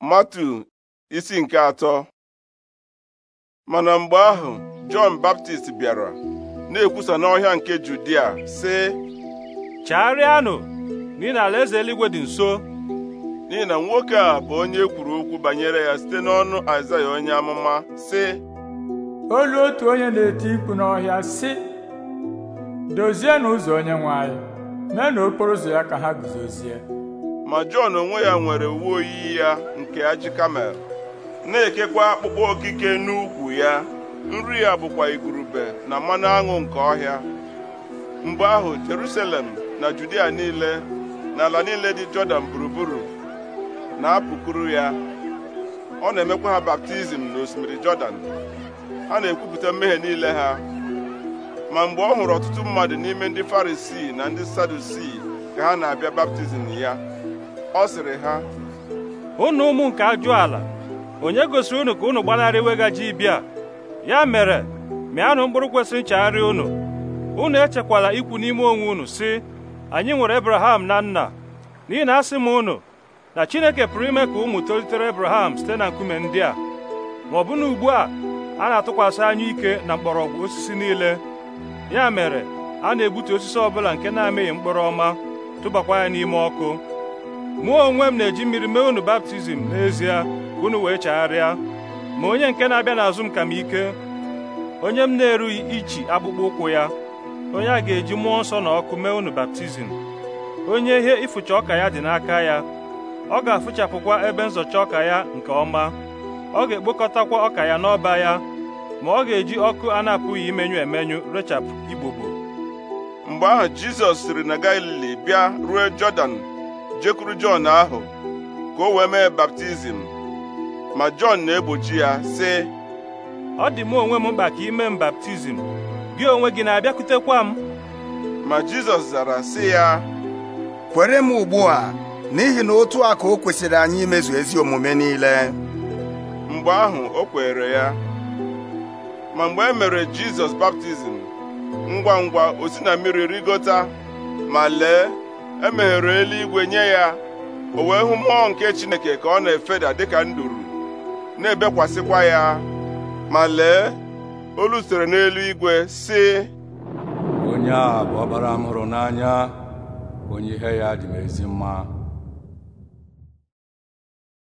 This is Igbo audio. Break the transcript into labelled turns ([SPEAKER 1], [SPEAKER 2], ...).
[SPEAKER 1] matu isi nke atọ mana mgbe ahụ jọn baptist bịara na-ekwusa n'ọhịa nke judia sị chagharịanụ n'ihi na alaeze eluigwe dị nso n'ihi na nwoke a bụ onye e kwuru okwu banyere ya site n'ọnụ aịzaya onye amụma sị olu otu onye na-eti mkpu n'ọhịa sị Dozie ụzọ onye nwanyị, mee na okporo ụzọ ya ka ha guzozie ma Jọn onwe ya nwere uwe oyi ya nke ajị kamel na-ekekwa akpụkpọ okike n'ukwu ya nri ya bụkwa igurube na mmanụ aṅụ nke ọhịa mgbe ahụ Jerusalem na Judia niile na ala niile dị Jọdan gburugburu na-apụkuru ya ọ na-emekwa ha baptizim n'osimiri Jọdan ha na-ekwupụta mmehie niile ha ma mgbe ọ hụrụ ọtụtụ mmadụ n'ime ndị Farisii na ndị
[SPEAKER 2] Sadusii ka ha na-abịa baptizim ya ọ sịrị ha Ụnụ ụmụ nke ajụ ala onye gosiri unu ka unu gbanarị iwega ji bịa ya mere mịanụ mkpụrụ kwesịrị nchegharị unu unu echekwala ikwu n'ime onwe unu si anyị nwere ebraham na nna n'ihi na asị m unu na Chineke pụrụ ime ka ụmụ tolitere ebraham site na nkume ndị a ma ọ bụ na ugbu a a na-atụkwasị anya ike na mgbọrọgwụ osisi niile ya mere a na-egbutu osisi ọbụla nke na-amịghị mkpụrụ ọma tụbakwa ya n'ime ọkụ mụọ onwe m na-eji mmiri mee unu baptizim n'ezie ka unu wee chagharịa ma onye nke na-abịa n'azụ m ka m ike onye m na-erughị ichi akpụkpọ ụkwụ ya onye a ga-eji mmụọ nsọ na ọkụ mee unu baptizim onye ihe ịfụcha ọka ya dị n'aka ya ọ ga-afụchapụkwa ebe nzọcha ọka ya nke ọma ọ ga-ekpokọtakwa ọka ya n'ọba ya ma ọ ga-eji ọkụ a na-apụghị imenyu emenyu rechapụ igbogbo mgbe ahụ Jizọs siri
[SPEAKER 1] na Galili bịa ruo Jọdan jekwuru Jọn ahụ ka o wee mee baptizim ma Jọn na-egbochi ya sị ọ dị m onwe m mkpa
[SPEAKER 2] ka ime m baptizim gị onwe gị na-abịakwutekwa m ma Jizọs zara sị ya
[SPEAKER 1] kwere m ugbu a n'ihi na otu a ka o kwesịrị anyị imezu ezi omume niile mgbe ahụ o kwere ya ma mgbe e mere Jizọs baptizim ngwa ngwa o si na mmiri rigota ma lee E meghere eluigwe nye ya o wee hụ mmụọ nke Chineke ka ọ na-efeda dịka nduru na-ebekwasịkwa ya ma lee olu sitere igwe sị
[SPEAKER 2] onye a bụ ọbara m hụrụ n'anya
[SPEAKER 1] onye ihe ya dị m ezi mma